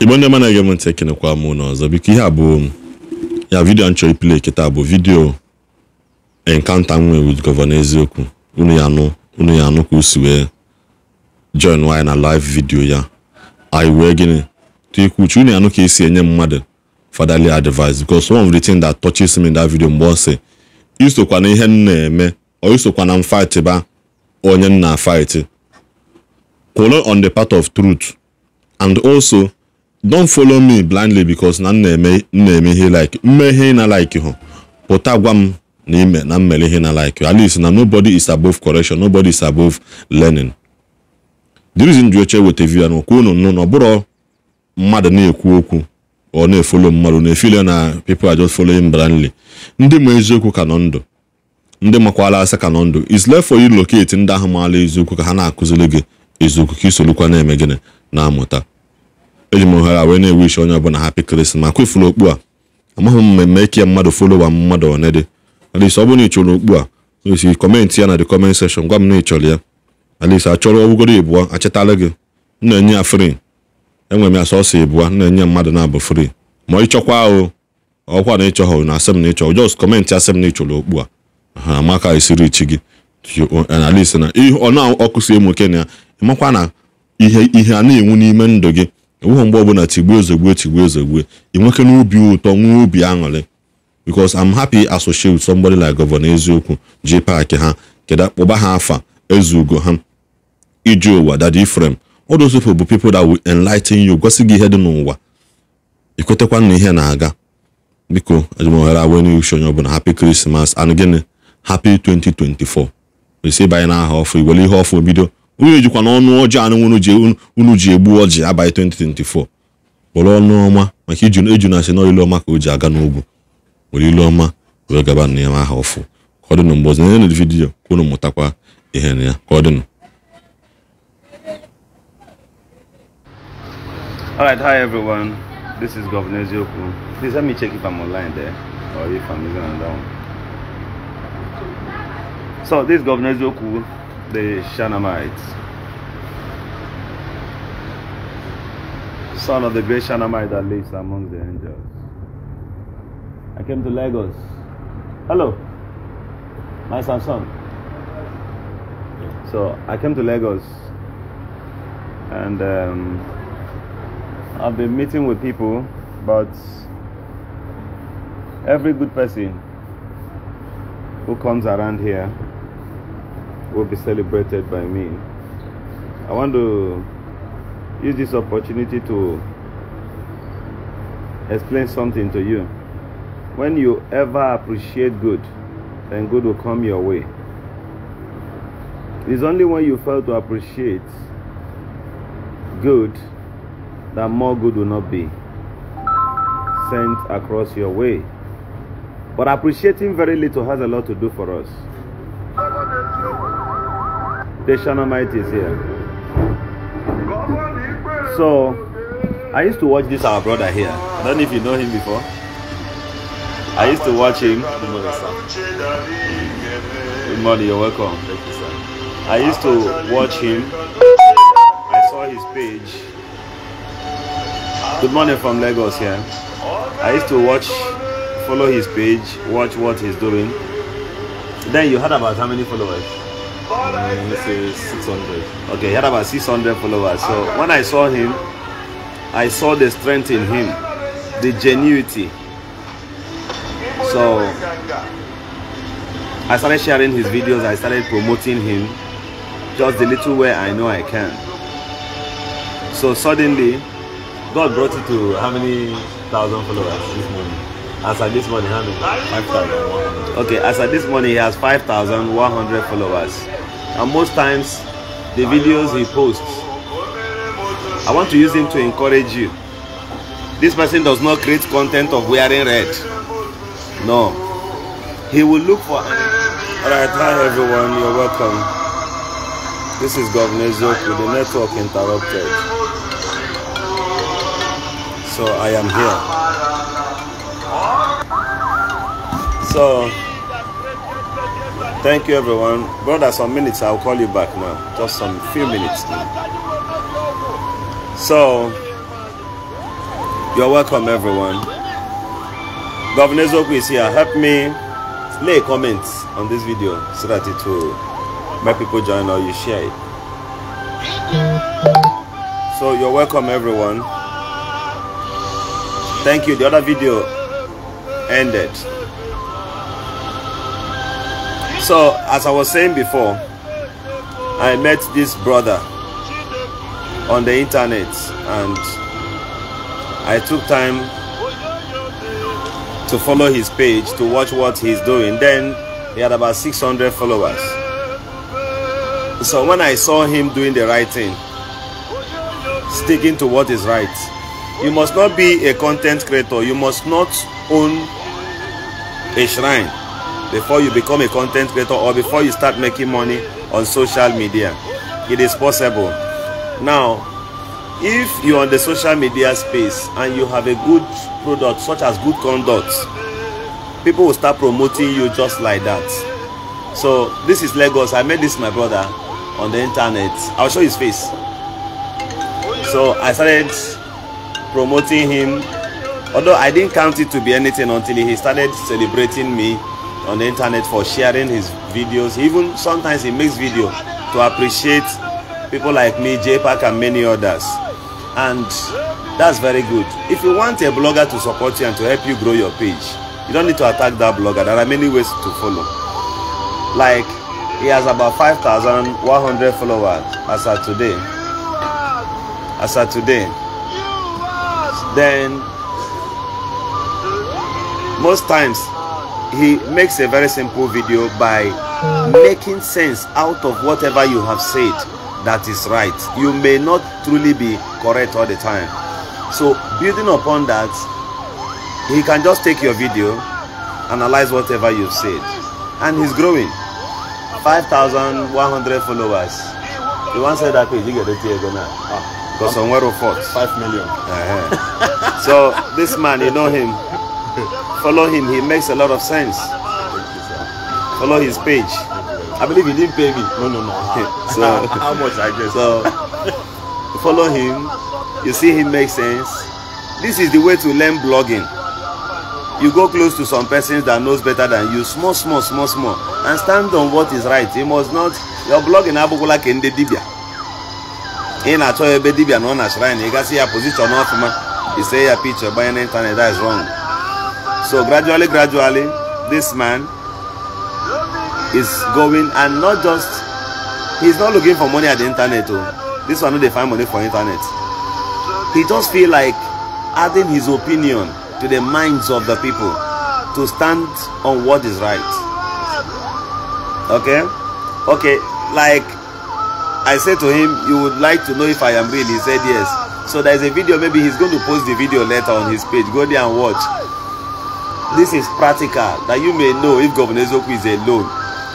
igbo ndị mana ege m ntị ekenekwa m ụlọ ọzọ biko ihe a bụ ya vidio m chọrọ ipile kịta bụ vidio enkanta m nwee wit gọvanọ eziokwu unu ya anụ unu ya anụ ka o wee join nwaanyị na live vidiyo ya anyị wee gịnị tikwu uche unu ya anụ ka esi enye mmadụ fatherly advice because one of the things that touches me in that video mgbe ọ sị isokwa na ihe m na-eme ọ isokwa na m fight ba onye m na fight kwụrụ on the part of truth and also don follow me blindly because na m na-eme ihe like mmehie na like hụ pụta gwa m na ime na mmere ihe na like at least na nobody is above correction nobody is above learning the reason ji oche weta view ya na okwu nụ na ọ bụrọ mmadụ na-ekwu okwu ọ na-efolo mmadụ na-efile na people are just following blindly ndị ma eziokwu ka nọ ndụ ndị makwala asa ka nọ ndụ is left for you locate ndị ahụ maala eziokwu ka ha na-akụziri gị eziokwu ka isolukwa na-eme gịnị na-amụta eji m ohere wee na-ewish onye ọbụla hapi krismas ifuru okpu a amaghị m mmemme ike ya mmadụ folowa mmadụ one alis ọ bụrụ na ị chọrọ okpu a esi kọmentị ya na the kọment sekshọn gwa m na ị chọrọ ya alisi achọrọ ọgwụgoro ịbụọ achịtala gị m na-enye ya fri enwere m ya sọsọ ịbụọ m na-enye mmadụ na-abụ fri ma ị chọkwa ahụ ọkwa na ịchọghọ na asem na ịchọrọ jos kọmentị na ịchọrọ okpu a ha amaka esiri chi gị analis na ọ na-ọkụsi emoke na ya ịmakwa na ihe ihe a na-enwu n'ime ndụ gị enweghị mgbe ọbụla tigbuo ozugbo tigbuo ozugbo ị n'obi ụtọ nwee obi aṅụrị because I'm happy associate with somebody like Governor Eziokwu ji paakị ha keda kpọba ha afa ezugo ha iji ụwa dad Ifrem all those bụ people that will enlighten you gosi gị ihe dị n'ụwa ikwetakwa na ihe na-aga biko ajụmohere awe n'uche onye ọbụla hapi Krismas and gịnị hapi 2024 esi banye n'aha ọfụ iwere ihe ọfụ bido unu ejikwa na ọnụ ọjọọ anụ unu ji egbu ọjị abalị 2024 kpọrọ ọnụ ọma maka iju na asị n'ilu ọma ka o ji aga n'ugwu were ilu ọma wee gaba na ya aha ọfụ ka ọ dịnụ mgbe ọzọ na vidiyo ka unu mụtakwa ihe na ya ka ọ dịnụ the Shanamites. Son of the great Shanamite that lives among the angels. I came to Lagos. Hello, my Samsung. So I came to Lagos and um, I've been meeting with people, but every good person who comes around here will be celebrated by me. I want to use this opportunity to explain something to you. When you ever appreciate good, then good will come your way. It's only when you fail to appreciate good that more good will not be sent across your way. But appreciating very little has a lot to do for us. The Almighty is here. So, I used to watch this our brother here. I don't know if you know him before. I used to watch him. Good morning, sir. Good morning, you're welcome. Thank you, sir. I used to watch him. I saw his page. Good morning from Lagos here. I used to watch, follow his page, watch what he's doing. Then you heard about how many followers? this is 600 okay he had about 600 followers so when i saw him i saw the strength in him the genuity so i started sharing his videos i started promoting him just the little way i know i can so suddenly god brought it to how many thousand followers this morning as at this morning how many 5100 okay as at this morning he has 5100 followers and most times the videos he posts. I want to use him to encourage you. This person does not create content of wearing red. No. He will look for Alright, hi everyone, you're welcome. This is Governor with the network interrupted. So I am here. So Thank you, everyone. Brother, some minutes. I'll call you back now. Just some few minutes. Now. So, you're welcome, everyone. Governor Zoku is here. Help me lay a comment on this video so that it will make people join or you share it. So, you're welcome, everyone. Thank you. The other video ended. So, as I was saying before, I met this brother on the internet and I took time to follow his page to watch what he's doing. Then he had about 600 followers. So when I saw him doing the right thing, sticking to what is right, you must not be a content creator, you must not own a shrine before you become a content creator or before you start making money on social media it is possible now if you're on the social media space and you have a good product such as good conduct people will start promoting you just like that so this is lagos i met this my brother on the internet i'll show his face so i started promoting him although i didn't count it to be anything until he started celebrating me on the internet for sharing his videos. Even sometimes he makes video to appreciate people like me, J and many others. And that's very good. If you want a blogger to support you and to help you grow your page, you don't need to attack that blogger. There are many ways to follow. Like he has about 5,100 followers as of today. As of today. Then most times he makes a very simple video by making sense out of whatever you have said that is right. You may not truly be correct all the time. So building upon that, he can just take your video, analyze whatever you've said. And he's growing. 5,100 followers. The one said that page, you get the tear go now. Ah, because somewhere of 5 million. Uh -huh. so this man, you know him. Follow him, he makes a lot of sense. Follow his page. I believe you didn't pay me. No, no, no. Ah. So how much I guess. So follow him. You see him make sense. This is the way to learn blogging. You go close to some persons that knows better than you, small, small, small, small, and stand on what is right. You must not your blogging abụkwụla ka ndị dibịa. Ị na-achọ ebe dibịa na ọ na shrine, ị gasị ya position ọfụma, ise ya picture gbanye internet that is wrong. So gradually, gradually, this man is going and not just, he's not looking for money at the internet. Oh. This one, they find money for internet. He just feel like adding his opinion to the minds of the people to stand on what is right. Okay? Okay, like I said to him, you would like to know if I am real. He said yes. So there's a video, maybe he's going to post the video later on his page. Go there and watch. this is practical that you may know if governor Ezeoku is alone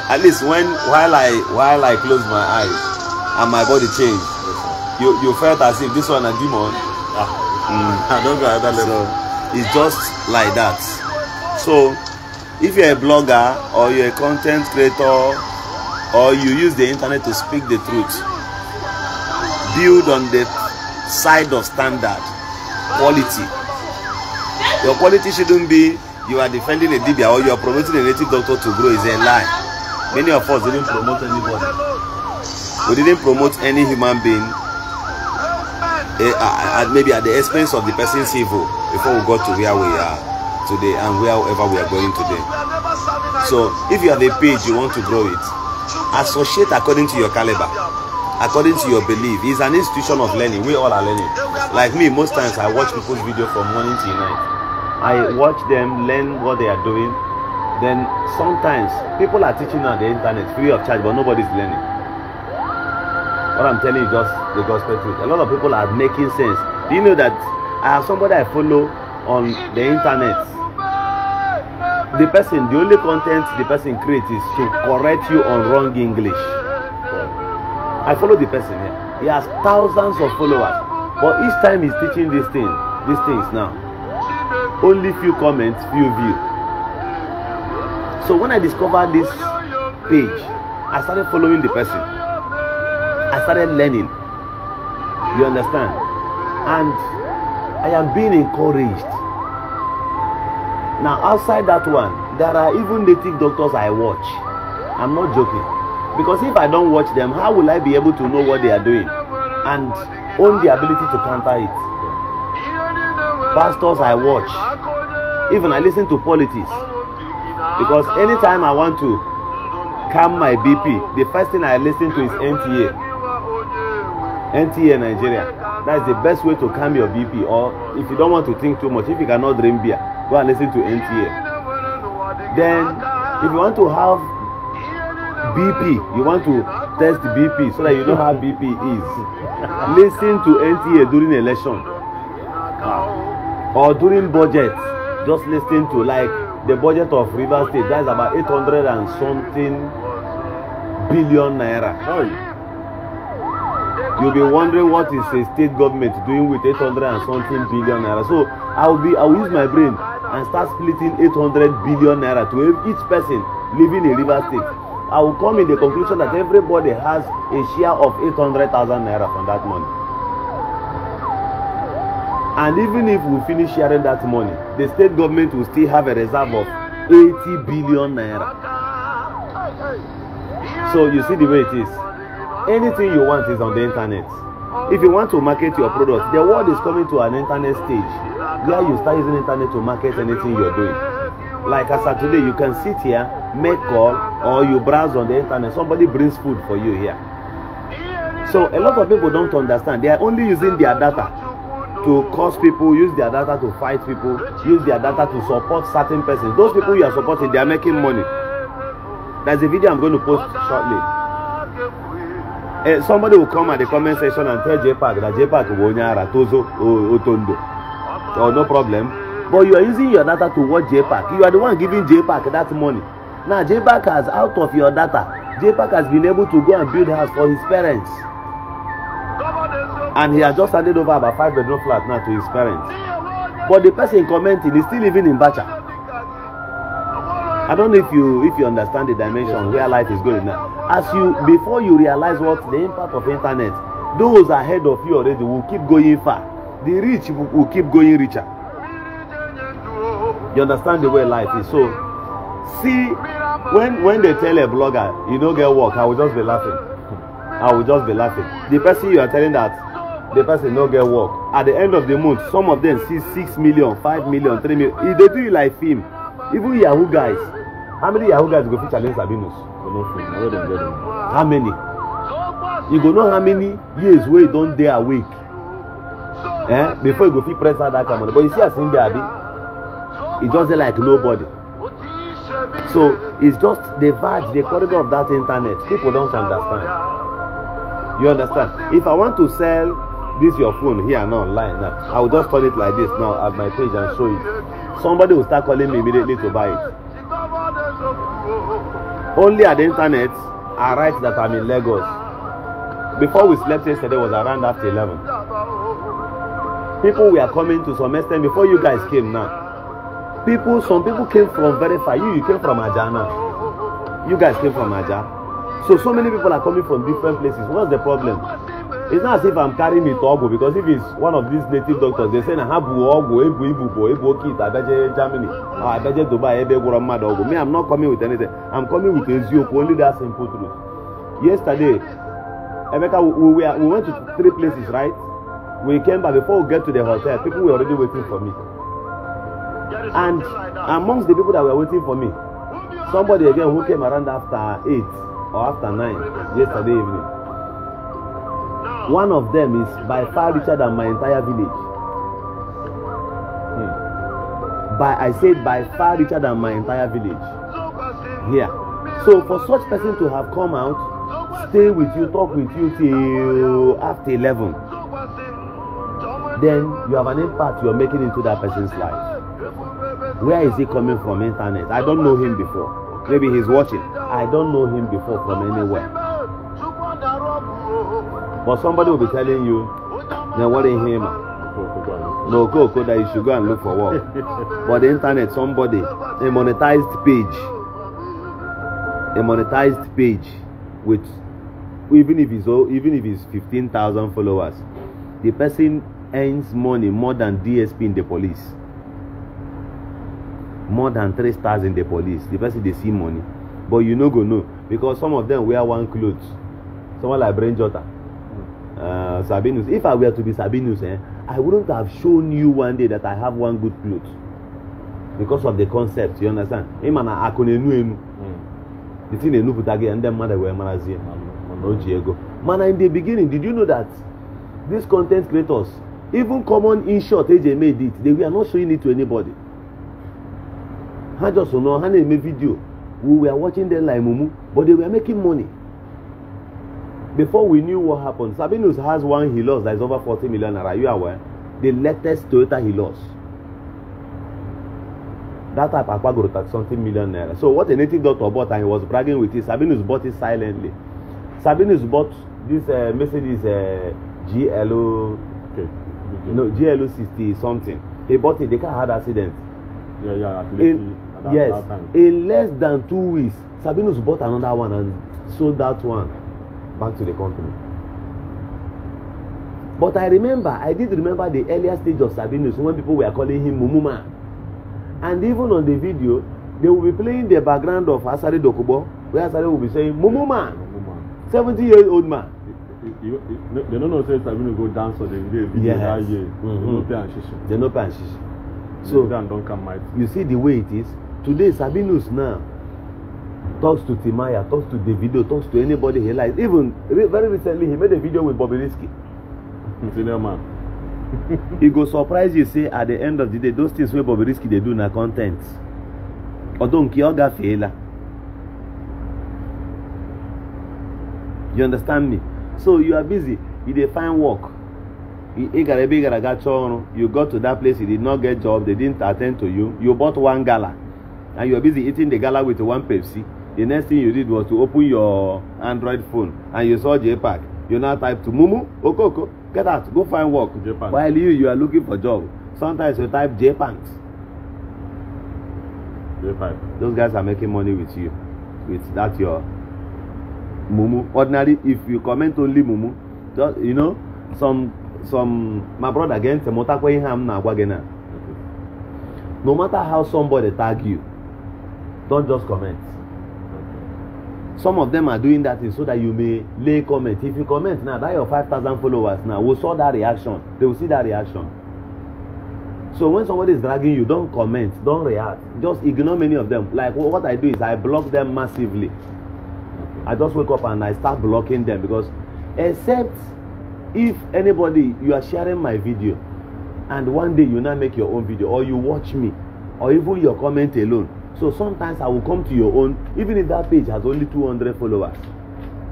at least when while i while i close my eyes and my body change yes, you you felt as if this one na demon ah mm. i don go another level so it's just like that so if you're a blogger or you're a content creator or you use the internet to speak the truth build on the side of standard quality your quality shouldn't be you are defending a Dibia or you are promoting a native doctor to grow is a lie. Many of us didn't promote anybody. We didn't promote any human being uh, uh, maybe at the expense of the person's evil before we got to where we are today and wherever we are going today. So if you have a page you want to grow it, associate according to your caliber, according to your belief. It's an institution of learning. We all are learning. Like me, most times I watch people's video from morning till night. I watch them, learn what they are doing. Then sometimes people are teaching on the internet free of charge, but nobody's learning. What I'm telling you is just the gospel truth. A lot of people are making sense. Do you know that I have somebody I follow on the internet? The person, the only content the person creates is to correct you on wrong English. I follow the person here. He has thousands of followers, but each time he's teaching these things, these things now only few comments few view so when i discovered this page i started following the person i started learning you understand and i am being encouraged now outside that one there are even native doctors i watch i'm not joking because if i don't watch them how will i be able to know what they are doing and own the ability to counter it pastors I watch, even I listen to politics. Because anytime I want to calm my BP, the first thing I listen to is NTA. NTA Nigeria. That's the best way to calm your BP. Or if you don't want to think too much, if you cannot drink beer, go and listen to NTA. Then, if you want to have BP, you want to test BP so that you know how BP is. listen to NTA during election or during budget just lis ten to like the budget of rivers state that is about eight hundred and something billion naira you be wondering what is a state government doing with eight hundred and something billion naira so i will be i will use my brain and start splitting eight hundred billion naira to each person living in rivers state i will come in the conclusion that everybody has a share of eight hundred thousand naira from that money And even if we finish sharing that money, the state government will still have a reserve of 80 billion naira. So you see the way it is. Anything you want is on the internet. If you want to market your product, the world is coming to an internet stage where you start using internet to market anything you're doing. Like as of today, you can sit here, make call, or you browse on the internet. Somebody brings food for you here. So a lot of people don't understand. They are only using their data to cause people, use their data to fight people, use their data to support certain persons. Those people you are supporting, they are making money. There's a video I'm going to post shortly. Uh, somebody will come at the comment section and tell JPAC that JPAC Wonyara, Tozo, Otondo. Oh, no problem. But you are using your data to watch JPAC. You are the one giving JPAC that money. Now, JPAC has, out of your data, JPAC has been able to go and build house for his parents and he has just handed over about five bedroom flat now to his parents but the person commenting is still living in Bacha I don't know if you if you understand the dimension where life is going now as you before you realize what the impact of internet those ahead of you already will keep going far the rich will keep going richer you understand the way life is so see when when they tell a blogger you don't get work I will just be laughing I will just be laughing the person you are telling that the person no get work at the end of the month some of them see six million five million three million e dey do you like film even yahoo guys how many yahoo guys go fit challenge sabinus you no fit where dem get them how many you go know how many years wey you don dey awake eh before you go fit press that kind of money but you see as him dey abi e just dey like nobody so it's just the verge the corridor of that internet people don't understand you understand if i want to sell this your phone here now online now i will just turn it like this now at my page and show it somebody will start calling me immediately to buy it only at the internet i write that i'm in lagos before we slept yesterday was around after eleven people were coming to some extent before you guys came now people some people came from very far you you came from Ajana. you guys came from aja so so many people are coming from different places what's the problem it's not as if i'm carrying it ogwu because if it's one of these native doctors they say na ha bụ ogwu ebu ibubo ebu oke ite abaje germany or ah, abaje dubai ebe gwọrọ mmadụ ọgwụ me i'm not coming with anything i'm coming with eziokwu only that simple truth yesterday emeka we, we, we went to three places right we came back before we get to the hotel people were already waiting for me and amongst the people that were waiting for me somebody again who came around after eight or after nine yesterday evening one of them is by far richer than my entire village hmm. by i said by far richer than my entire village here yeah. so for such person to have come out stay with you talk with you till after eleven then you have an impact you are making into that person's life where is he coming from internet i don't know him before maybe he's watching i don't know him before from anywhere But somebody will be telling you, they're worry him. No, go, go, that you should go and look for work. but the internet, somebody, a monetized page, a monetized page with, even if it's, even if fifteen thousand followers, the person earns money more than DSP in the police. More than three stars in the police. The person, they see money. But you no go know. Because some of them wear one clothes. Someone like Brain Jota uh, Sabinus. If I were to be Sabinus, eh, I wouldn't have shown you one day that I have one good cloth because of the concept. You understand? Ịma na akụ na-enu enu. The thing na-enupụta gị ndị mmadụ wee marazie na o ji ego. Mana in the beginning, did you know that these content creators, even common in short eji eme edit, they were not showing it to anybody. Ha just nọ ha na-eme video. We were watching them like mumu, but they were making money before we knew what happened sabinus has one he lost that is over forty million naira you aware the latest toyota he lost that type akpagoro thirty something million naira so what a native doctor bought and he was bragging with it sabinus bought it silently sabinus bought this uh, mercedes uh, glo okay. okay. no glo sixty something he bought it the car had accident yeah, yeah, in that, yes that in less than two weeks sabinus bought another one and sold that one back to the company but i remember i did remember the earlier stage of sabinus when people were calling him mumuma and even on the video they will be playing the background of Asari dokubo where Asari will be saying mumuma seventy years old man. they no know say sabinus go dance on the video yes. that mm-hmm. year they no pay am shishi. they no pay so you see the way it is today sabinus now talks to timaya talks to davido talks to anybody he likes even very recently he made a video with bobrisky senior man he go surprise you say at the end of the day those things wey bobrisky they do na content, ten t although nke ọ you understand me so you are busy you dey find work you go to that place you did not get job they didn't attend to you you bought one gala and you are busy eating the gala with one Pepsi, the next thing you did was to open your Android phone and you saw JPEG. You now type to Mumu, Okoko, get out, go find work. JPEG. While you, you are looking for job. Sometimes you type JPANs. JPEG. Those guys are making money with you, with that your Mumu. Ordinarily, if you comment only Mumu, just, you know, some some my brother again, Temotakwe Ham na No matter how somebody tag you, Don't just comment. Some of them are doing that thing so that you may lay comment. If you comment now, that your five thousand followers now will saw that reaction. They will see that reaction. So when somebody is dragging you, don't comment, don't react. Just ignore many of them. Like what I do is I block them massively. I just wake up and I start blocking them because except if anybody you are sharing my video and one day you now make your own video or you watch me or even your comment alone So sometimes I will come to your own, even if that page has only 200 followers,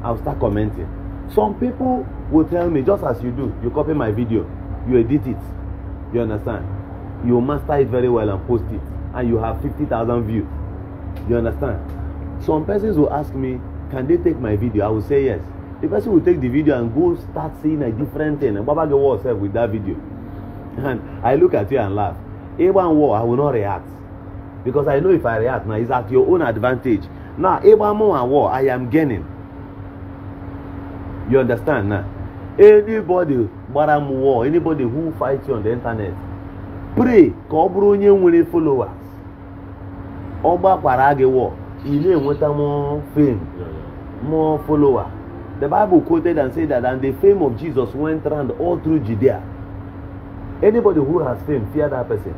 I will start commenting. Some people will tell me, just as you do, you copy my video, you edit it, you understand? You master it very well and post it, and you have 50,000 views. You understand? Some persons will ask me, can they take my video? I will say yes. The person will take the video and go start saying a different thing. And Baba get war herself with that video. And I look at you and laugh. A1 war, I will not react because i know if i react now it's at your own advantage now ebamo and war i am gaining you understand now anybody but I'm war anybody who fights you on the internet pray ka ọ bụrụ onye nwere followers ọ gbakwara gị war ị na more fame more follower the bible quoted and said that and the fame of jesus went round all through judea anybody who has fame fear that person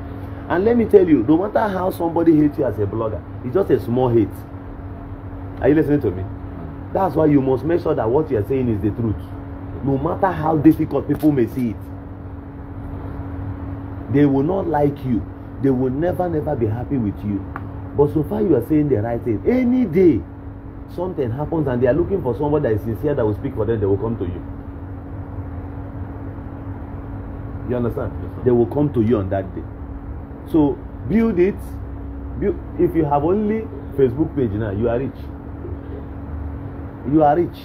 And let me tell you, no matter how somebody hates you as a blogger, it's just a small hate. Are you listening to me? Mm. That's why you must make sure that what you're saying is the truth. No matter how difficult people may see it, they will not like you. They will never, never be happy with you. But so far, you are saying the right thing. Any day, something happens and they are looking for someone that is sincere that will speak for them, they will come to you. You understand? Yes, they will come to you on that day so build it build if you have only facebook page now you are rich you are rich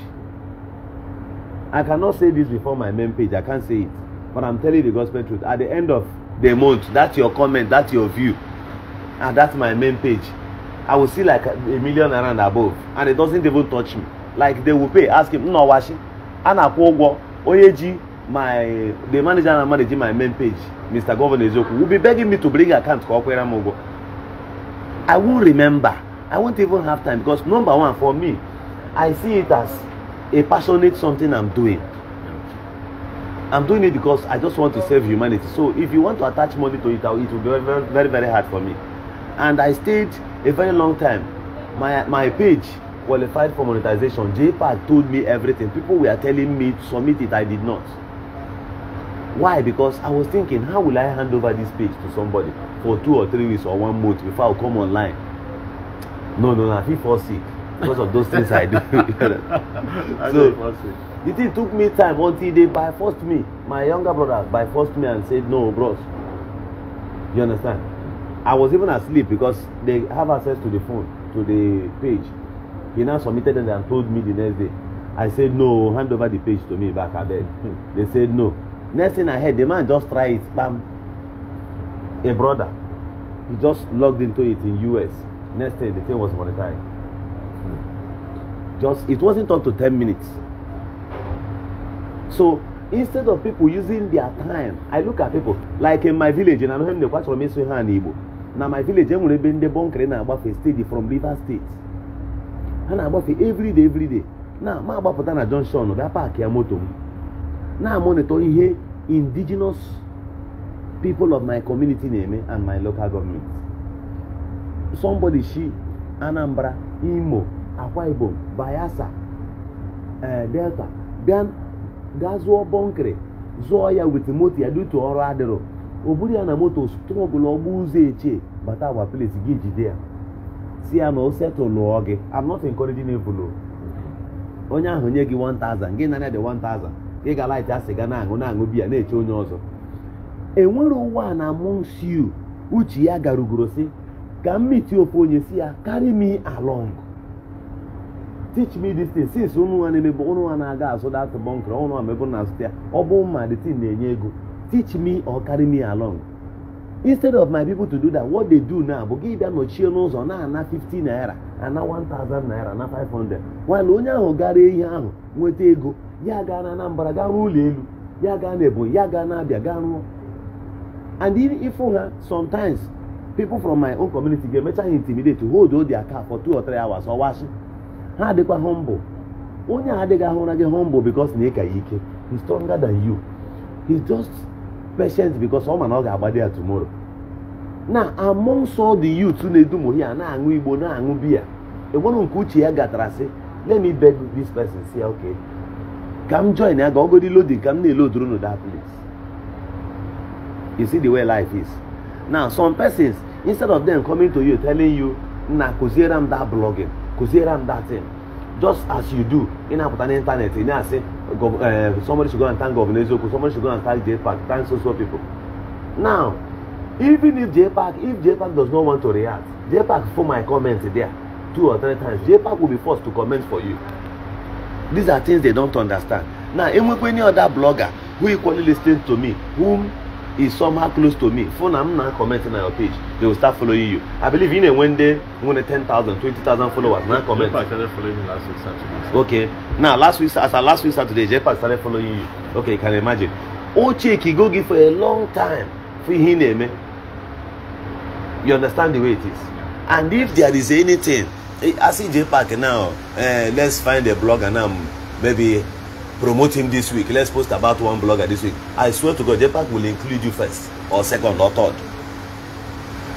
i cannot say this before my main page i can't say it but i'm telling the gospel truth at the end of the month that's your comment that's your view and ah, that's my main page i will see like a million around above and it doesn't even touch me like they will pay ask him nna ọwashi a na-akwụ ụgwọ onye ji my the manager na managing my main page mr governor eziokwu will be begging me to bring account ka ọ kwere i won't remember i won't even have time because number one for me i see it as a passionate something i'm doing i'm doing it because i just want to save humanity so if you want to attach money to it it will be very very very hard for me and i stayed a very long time my my page qualified for monetization jpal told me everything people were telling me to submit it i did not Why? Because I was thinking, how will I hand over this page to somebody for two or three weeks or one month before I come online? No, no, no, I feel fall sick because of those things I do. so the thing took me time until they by forced me, my younger brother by forced me and said, No, bros. You understand? I was even asleep because they have access to the phone, to the page. He now submitted and told me the next day. I said, No, hand over the page to me back at they said no next thing i heard the man just try it bam a brother he just logged into it in us next day the thing was monetized just it wasn't up to ten minutes so instead of people using their time i look at people like in my village in anaheim dey kwachoro meso ha na igbo na my village enwere ebe ndị bonkere na-agbafe steady from rivers state ha na-agbafe everyday everyday na ma agbapụta na junction bịa paakị ya moto m na-amonitọ ihe indigenous people of my community na-eme and my local government somebody shi Anambra Imo Akwa Ibom Bayelsa eh, Delta bịa gaa zụọ bọnkịrị zụọ ya wit moto ya dutu ọrụ adịrọ o buru ya na moto tụrụ ọbụla ọgba ụzọ echie bata agwa plet gị jide ya si ya na o setụl gị I'm not encouraging onye ahụ nye gị 1000 gị nara dị 1000 ị ga-alaịta ga na-aṅụ na-aṅụ biya na-eche onye ọzọ enwere ụwa na monsiu uche ya garugoro si ka mmiti ofe onye si ya carry me along teach me this thing since ụnụ nwa na-emebe ụnụ nwa na-aga azụ dat bunkr ụnụ nwa mebe na azụta ya ọ bụ mma the thing na-enye ego teach me or carry me along instead of my people to do that what they do now bụ gị bịa nọchie n'ụzọ na-ana 50 naira ana 1000 naira na 500 while onye ahụ gara ihe ahụ nweta ego ya gaa na Anambra gaa ruo ụlọ elu ya gaa na Ebonyi ya gaa na Abia gaa ruo and ịfụ ha sometimes people from my own community ga-emecha ha intimidate hold their car for two or three hours ọwashi ha adịkwa humble onye a adịghị ahụra gị humble because na ị ka ya ike he's stronger than you he's just patient because ọ ma na ọ ga agbadi ya tomorrow na amongst all the youth na-edumo a na-aṅụ igbo na-aṅụ biya enwere nke uche ya gatara sị let me beg this person say okay Come join ya ga ọ load loading ka m na-eloduru na that place you see the way life is now some persons instead of them coming to you telling you na kụziere m that blogging kụziere m that thing just as you do ị na-apụta n'ịntanetị ị na-asị eh, somebody should go and thank governor eziokwu somebody should go and thank jpac thank so so people now even if jpac if jpac does not want to react jpac for my comment there two or three times jpac will be forced to comment for you these are things they don't understand now enwekwe any other blogger who equally listens to me whom is somehow close to me phone am na comment na your page they will start following you i believe you know when they when ten thousand twenty thousand followers na comment jepa started following me last week saturday okay now last week as at last week saturday jepa started following you okay you can imagine ocheki go give for a long time for him name. Eh? you understand the way it is and if there is anything I eh, see J Park now. Uh, eh, let's find a blogger now. Maybe promote him this week. Let's post about one blogger this week. I swear to God, J Park will include you first, or second, or third.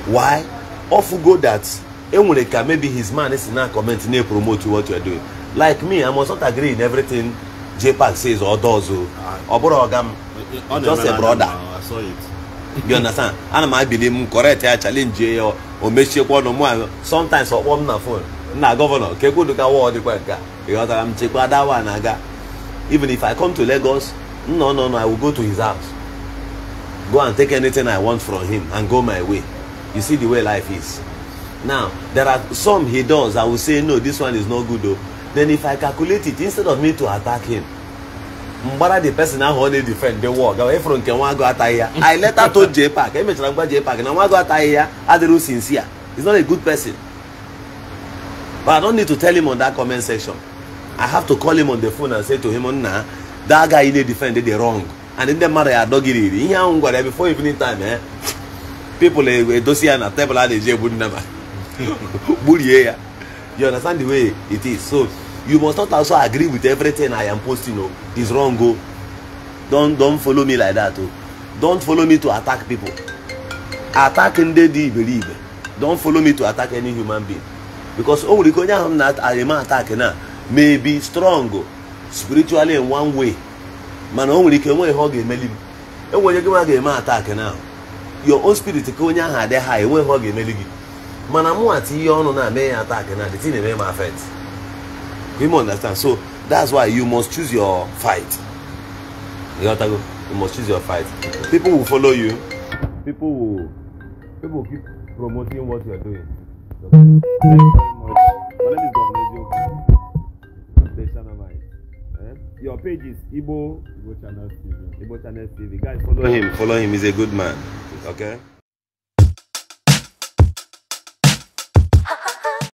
Why? Off go that eh, Enwureka, maybe his man is not commenting, they promote you what you are doing. Like me, I must not agree in everything J Park says or does. Oh. Ah. Or, or, or, just a brother. I saw it you understand ana m abili correct ya challenge ya o mechiekwa ọnụ mụ sometimes ọkpọ m na fon nna gọvanọ ka ekwuduka wa dịkwa nke ịghọtara m chekwa dawa na aga even if i come to lagos no no no i will go to his house go and take anything i want from him and go my way you see the way life is now there are some he does i will say no this one is not good o then if i calculate it instead of me to attack him mgbara the person ahụ ọ na-edifend dị wọ gawa ịfụrụ nke nwa agụ ataghị ya i later told Jay Park emechara ngwa Jay Park na nwa agụ ataghị ya adịrị sincere he's not a good person but i don't need to tell him on that comment section i have to call him on the phone and say to him nna that guy ị na-edifend dị wrong and ndị mmadụ ya adọgiriri ihe ahụ gwara ya before evening time eh people edosi e ya na tebụl a na-eji egbu nna ma gburie ya you understand the way it is so you must not also agree with everything i am posting o oh. it's wrong o oh. don don follow me like that o oh. don follow me to attack people attack ndị dị iberibe don follow me to attack any human being because o nwere ike onye ahụ na-arịma attack na may be strong spiritually in one way mana o nwere ike enweghị ihe ọ ga-emeli m enwere gị e nwa ga-eme attack na your own spirit ka onye ahụ adị ha enweghị ihe ọ ga-emeli gị mana mụ ati ihe ọnụ na-eme ya attack na the thing eme m affect you understand so that's why you must choose your fight you know go you must choose your fight people will follow you people will people will keep promoting what you are doing thank you very much my name is governor joe station number eh your page is igbo igbo channel tv igbo channel tv guys follow him follow him he's a good man okay.